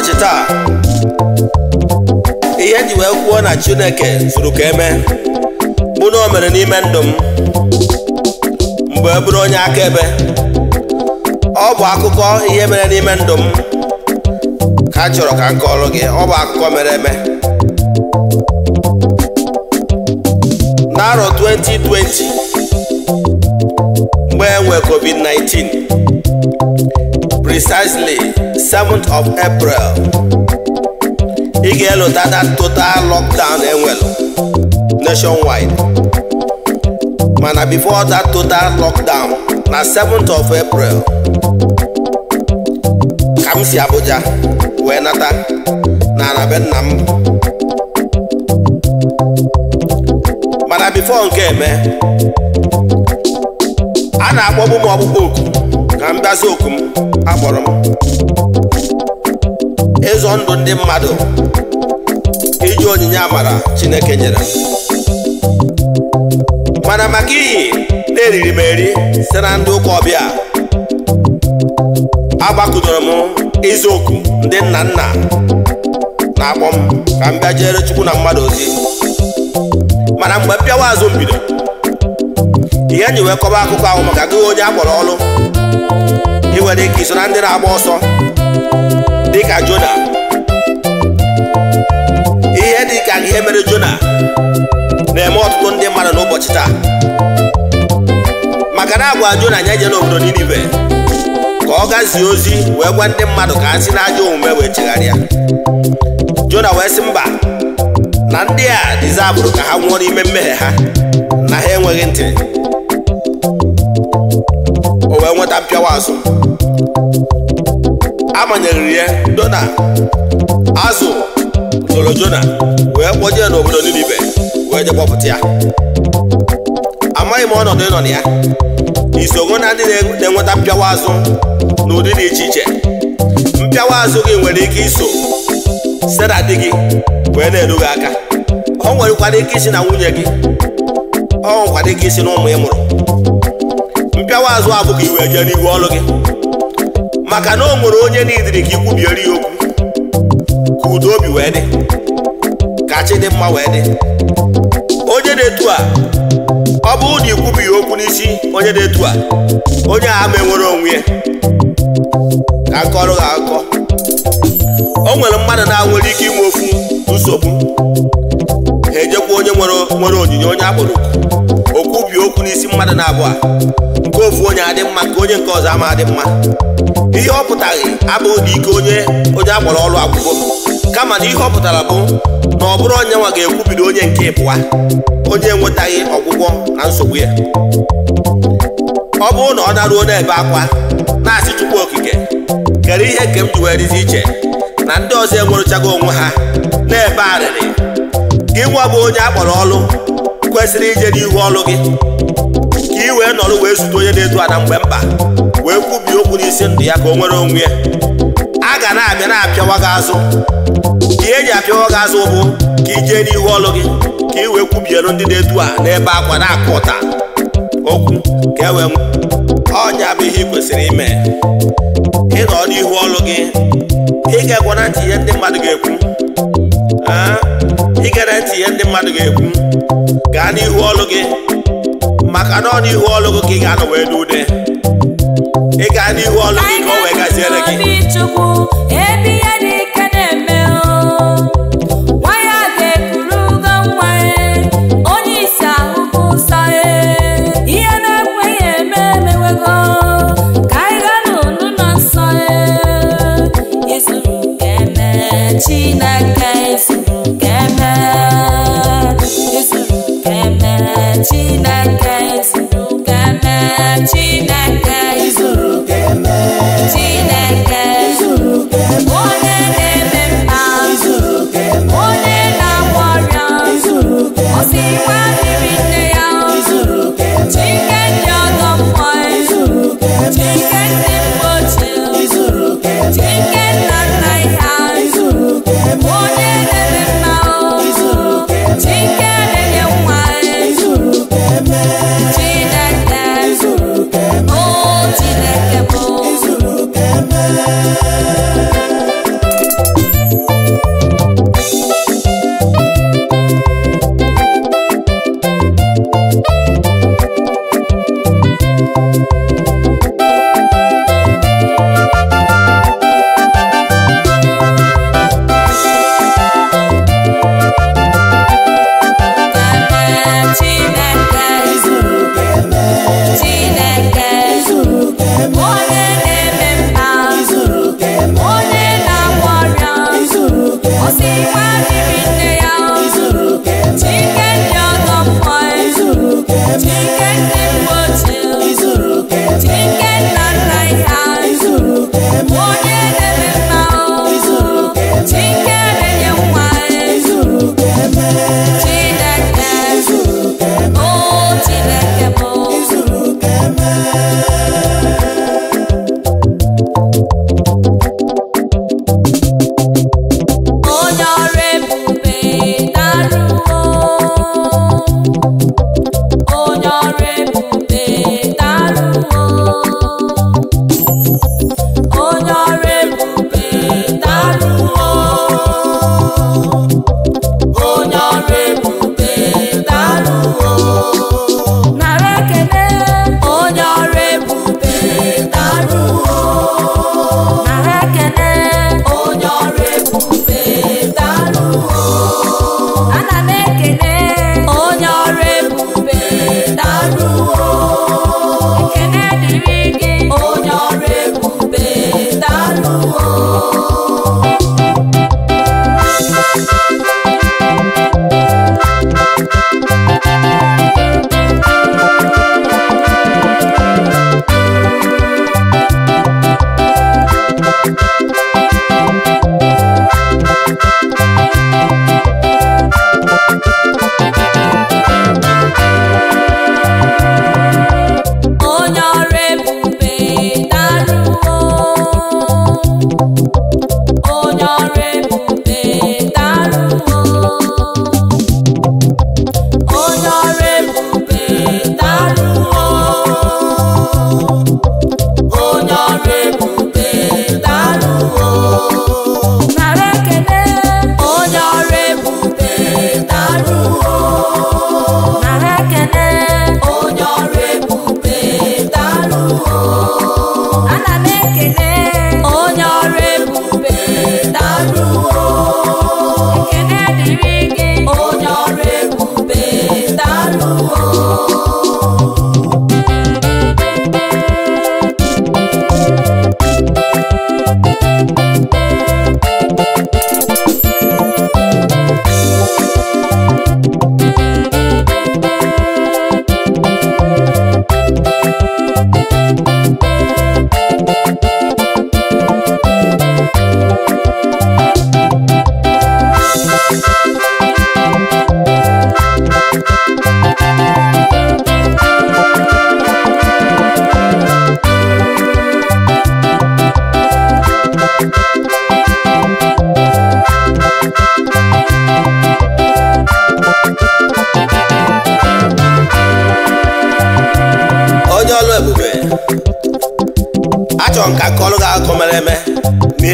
n'ụbọchị taa ihe e ji wee kwuo na chineke zuru ka eme bụ na o mere n'ime ndụ m mgbe e bụrụ onye akaebe ọ bụ akụkọ ihe mere n'ime ndụ m ka a chọrọ ka m gị ọ bụ akụkọ mere eme n'arọ 2020 mgbe e enwe covid-19 precisely 7th of April ị ga-elota that total lockdown enwelu nationwide mana before that total lockdown na 7th of April ka m si Abuja wee nata na anabe nna m mana before nke eme a na-akpọbu m ọkpụkpọ oku ka m bịazi oku m akpọrọ m ịzọ ndụ ndị mmadụ iji onyinye amara Chineke nyere mana maka iyi na-eriri m eri site na ndị ụka ọbịa agbakụdoro m ịza ndị nna nna na-akpọ m ka m bịa jere Chukwu na mmadụ ozi mana mgbe m bịawa azụ mbido ihe nyi kọba akụkọ ahụ maka gị onye akpọrọ ọlụ. ndị nwere ike iso na ndị na-agba ọsọ dịka Jona ihe dịka ihe mere Jona na-eme ọtụtụ ndị mmadụ n'ụbọchị taa maka na agwa Jona anya je obodo Ninive ka ọ gazie ozi wee gwa ndị mmadụ ka ha si n'ajọ omume wee eh. oh, chegharịa Jona wee sị mba na ndị a abụrụ ka ha nwụọ n'ime mmehie ha na ha enweghị ntị o wee nweta mpịawa azụ amanyeriri ya dona azụ jona wee kpọjee n'obodo Ninive wee je kpọpụta ya amaghị m ọnọdụ ịnọ na ya isogo na ndị na-enweta mpịawa azụ n'ụdị dị iche iche mpịawa azụ gị nwere ike iso sera di gị wee na-edu gị aka ọ nwerekwara ike isi na nwunye gị ọ nwekwara ike isi na ụmụ ị mụrụ mpịawa azụ abụghị iwe jee n'ihu ọlụ gị maka na o nwere onye n'idiri ka ikwubiere ya okwu ka udo obi wee dị ka chi dị mma wee dị onye dị etu a ọ bụ na ikwubi ya okwu n'isi onye na etu a onye a ma enwere onwe ya ka akọrọ ha akọ o nwere mmadụ na-nwere ike inwe ofu nsogbu ha ejekwa onye nwere onyinye onye akpụrụ ọkụ n'isi mmadụ na abụọ nke ofu onye adị mma nke onye nke ọzọ ama adị mma ihe ọ pụtaghị abụghị na ike onye onye akpọrọ ọrụ agwụgo kama na ihe ọ pụtara bụ na ọ bụrụ onye nwa ga-ekwubido onye nke ịpụwa onye enwetaghị ọgwụgwọ na nsogbu ya ọ bụrụ na ọ naruo n'ebe akwa na-asị chukwu okike kere ihe nke m ji wee dịzi iche na ndị ọzọ enwerụchago onwe ha na-ebe arịrị gị nwa bụ onye akpọrọ ọlụ kwesịrị ije n'ihu ọlụ gị wee nọrọ wee zute onye na-edu ada mgbe mba wee kwubie okwu n'isi ndụ ya ka o nwere onwe ya a ga na-abịa na-apịawa gị azụ ka eji apịawa gị azụ bụ ka i jee n'ihu ọlụ gị ka i wee kwubiere ndị na-edu a n'ebe akwa na-akụ ụta okwu ka e ọnya bụ ihe ị kwesịrị ime ịnọ n'ihu ọlụ gị ị ga na ntị ihe ndị mmadụ ga-ekwu ị na ntị ihe ndị mmadụ ga-ekwu gaa n'ihu ọlụ gị maka na ọ n'ihu ọlụgụ ka ị ga-anọ wee n'ude ị gaa n'ihu ọlụgụ gị ka o wee gaziere gị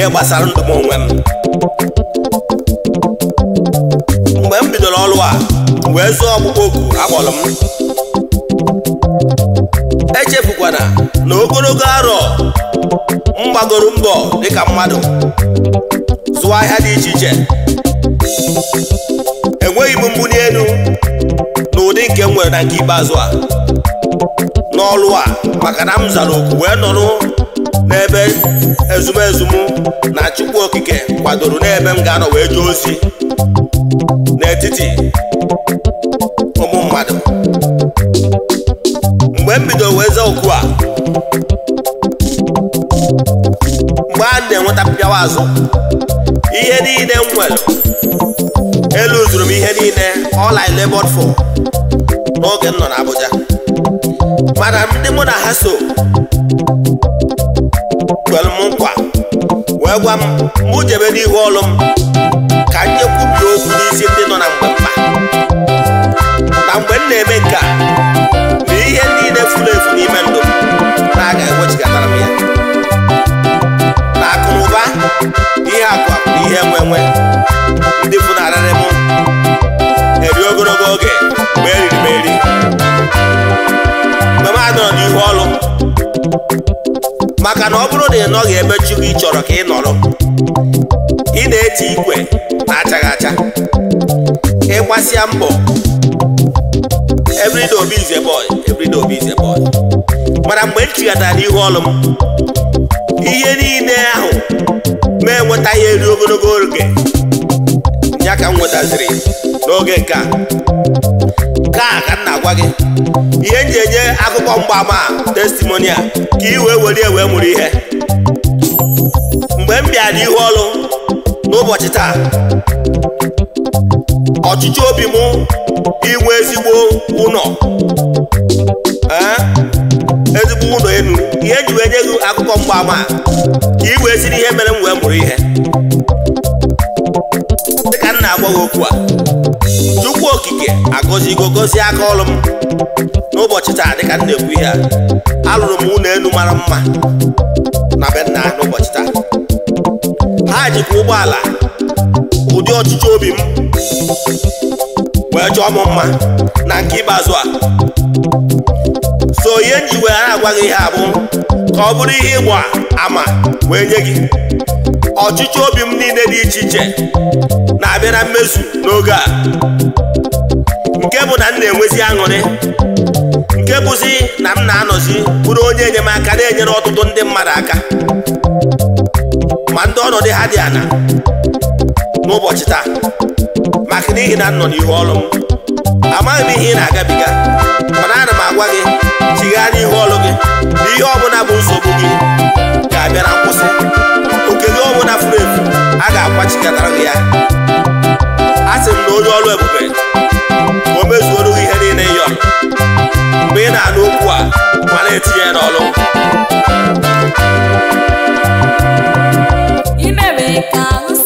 ihe gbasara ndụ m onwe m mgbe m bidoro ọrụ a wee zụọ ọkpụkpọ oku akpọrọ m echefukwana na ogologo arọ m gbagoro mbọ dịka mmadụ zụọ ahịa dị iche iche enweghị m mbuli elu n'ụdị nke m nwere na nke ikpeazụ a n'ọrụ a maka na m zara oku wee nọrọ n'ebe ezumezu na Chukwu Okike kwadoro n'ebe m ga-anọ wee jee ozi n'etiti ụmụ mmadụ mgbe m bido wee zaa oku a mgbe a na-enweta pịawa azụ ihe niile m nwere elu zuru m ihe niile all I labored for n'oge m nọ n'Abuja mana ndị mụ na ha so kwere m nkwa wee gwa m mụ jebe n'ihu ọlụ m ka m nyekwubie okwu n'isi ndị nọ na mgbe mma na mgbe m na-eme nke na ihe niile furu efu n'ime ndụ na-aga ewechigatara m ya na akụ ụba ihe akụ na ihe enwe enwe maka na ọ bụrụ na ị nọghị ebe Chukwu ị chọrọ ka ị nọrọ ị na-eti ikwe na-achaghị acha ịgbasịa mbọ everyday mana mgbe m chighatara ihu ọrụ m ihe niile ahụ ma enweta ya eri ogologo oge ya ka m nwetaziri n'oge nke a nke a ka m na-agwa gị ihe m ji enye akụkọ mgbaama testimonial ka i wee were wee mụrụ ihe mgbe m bịara n'ihu ọrụ n'ụbọchị taa ọchịchị obi m inwe ezigbo ụlọ ezigbo ụlọ elu ihe ji wee nye gị akụkọ mgbaama ka i wee siri ihe mere m wee mụrụ ihe na-agwa gị okwu a tupu okike agọzigo gozie aka ọrụ m n'ụbọchị taa dịka m na-ekwu ihe a alụrụ m ụlọ elu mara mma na be nna n'ụbọchị taa ha jikwa ụgbọala ụdị ọchịchị obi m wee chọọ m mma na nke ikpeazụ a so ihe nji wee na-agwa gị ihe abụ ka ọ bụrụ ihe ịgba ama wee nye gị ọchịchị obi m niile dị iche iche na abịara mmezu n'oge a nke bụ na m na-enwezi aṅụrị nke bụzi na m na-anọzi bụrụ onye enyemaka na-enyere ọtụtụ ndị mmadụ aka ma ndị ọnọdụ ha dị ana n'ụbọchị taa maka n'ihi na m nọ n'ihu ọlụ m amaghị m ihe ị na-agabiga mana ana m agwa gị chighaa n'ihu ọlụ gị na ihe ọbụla bụ nsogbu gị ga-abịa na nkwụsị ọnwụ na furu efu a ga-akwachikọtara ya a sị m na onye ọrụ ebube o mezuoro ihe niile ịyọ mgbe ị na-anụ okwu a ma na-etinye ya ka ahụ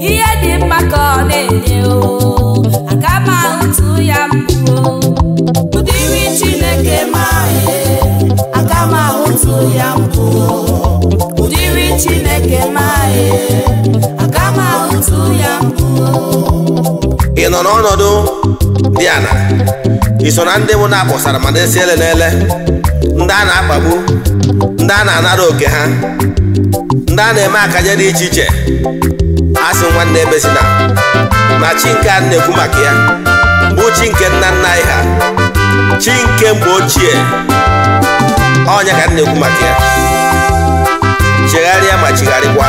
ihe dị mma ka na-enye ya Chineke akama otu e. ya Chineke akama otu e. ya ị nọ n'ọnọdụ dị ala ị so na ndị bụ na-akpọsara ma na-esi ele n'ele ndị a na-akpagbu ndị a na-anara oke ha ndị a na-eme akanya dị iche iche asị nwanne ebezina na chi nke a na-ekwu maka ya bụ chi nke nna nna anyị ha chi nke mgbe ochie ọnya ka na-ekwu maka ya chegharịa ma chigharịkwa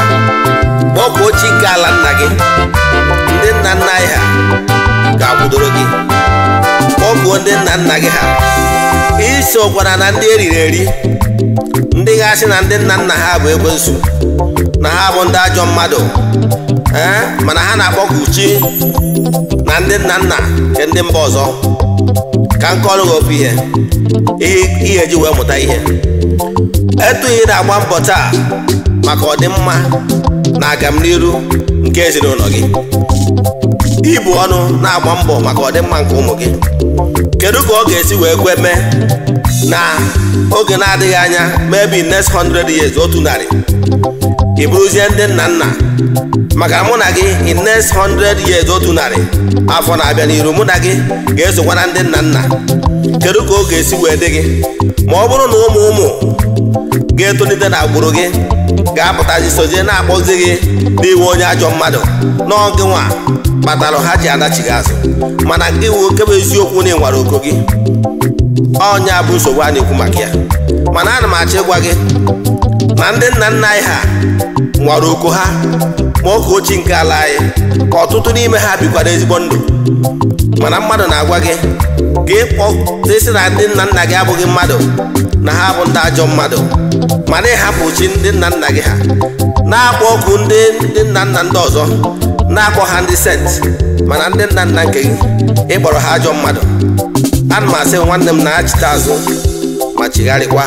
kpọkwuo chi nke ala nna gị ndị nna nna anyị ha ga-akwụdoro gị kpọkwuo ndị nna nna gị ha kwana na ndị eriri eri ndị ga na ndị nna nna ha bụ ekwensu na ha bụ ndị ajọ mmadụ ee mana ha na-akpọku chi na ndị nna nna nke ndị mba ọzọ ka nke ọrụ gị ihe ihe ji wee mụta ihe etughị na-agba mbọ taa maka ọdịmma na agamniru nke ezinụlọ gị ibu ọnụ na-agba mbọ maka ọdịmma nke ụmụ gị kedu ka ọ ga-esi wee kwe mee na oge na-adịghị anya maybe next 100 years otu narị ị bụrụzie ndị nna nna maka mụ na gị in next 100 years otu narị afọ na-abịa n'iru mụ na gị ga-esokwana ndị nna nna kedu ka ọ ga-esi wee dị gị ma ọ bụrụ na ụmụ ụmụ ga-etolite na agbụrụ gị ga-apụtazi sozie na-akpọzi gị n'iwe onye ajọ mmadụ n'oge nwa kpatara ha ji adachi gị azụ mana nke wụ okebe eziokwu na ịnwara oko gị ọnya bụ nsogbu a na-ekwu maka ya mana ana m achọ ịgwa gị na ndị nna nna anyị ha nwara oko ha ma oge ochie nke ala anyị ka ọtụtụ n'ime ha bikwara ezigbo ndụ mana mmadụ na-agwa gị gị kpọtesi na ndị nna nna gị abụghị mmadụ na ha bụ ndị ajọ mmadụ mana ịhapụ chi ndị nna nna gị ha na-akpọ oku ndị nna nna ndị ọzọ na akpọ ha ndị sent mana ndị nna nna nke gị ịkpọrọ ha ajọ mmadụ ana m asị nwanne m na-achịta azụ ma chigharịkwa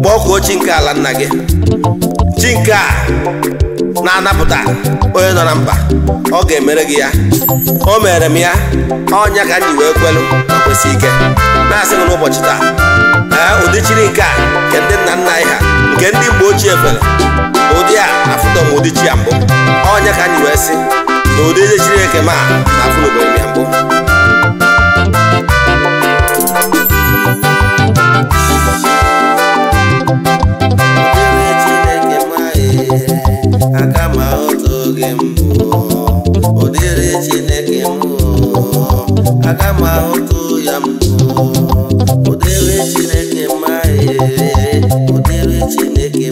kpọkuo chi nke ala nna gị chi nke a na-anapụta onye nọ na mba ọ ga-emere gị ya o mere m ya ọnya ka m wee kwelu ma kwesị ike na-asị m n'ụbọchị taa ee ụdị chiri nke a nke ndị nna nna anyị ha nke ndị mgbe ochie fere ụdị a afụtọm ụdị chi ya mbụ ọnya ka anyị wee sị na ụdị eze Chineke ma na afụ n'obodo ya mbụ ya mbụ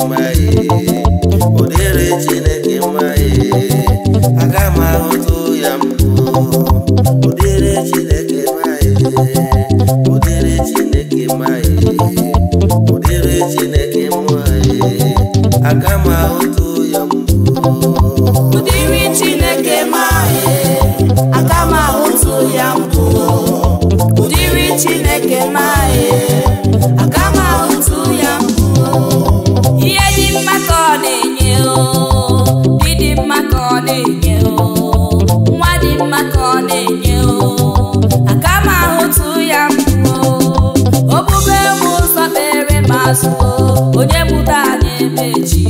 mma ihe ụdịrị chineke mma ihe aga m ahụtụ ya mbụ ụdịrị chineke mma ihe ụdịrị chineke mma ihe ụdịrị chineke mma azụ onye mụta anyị emechi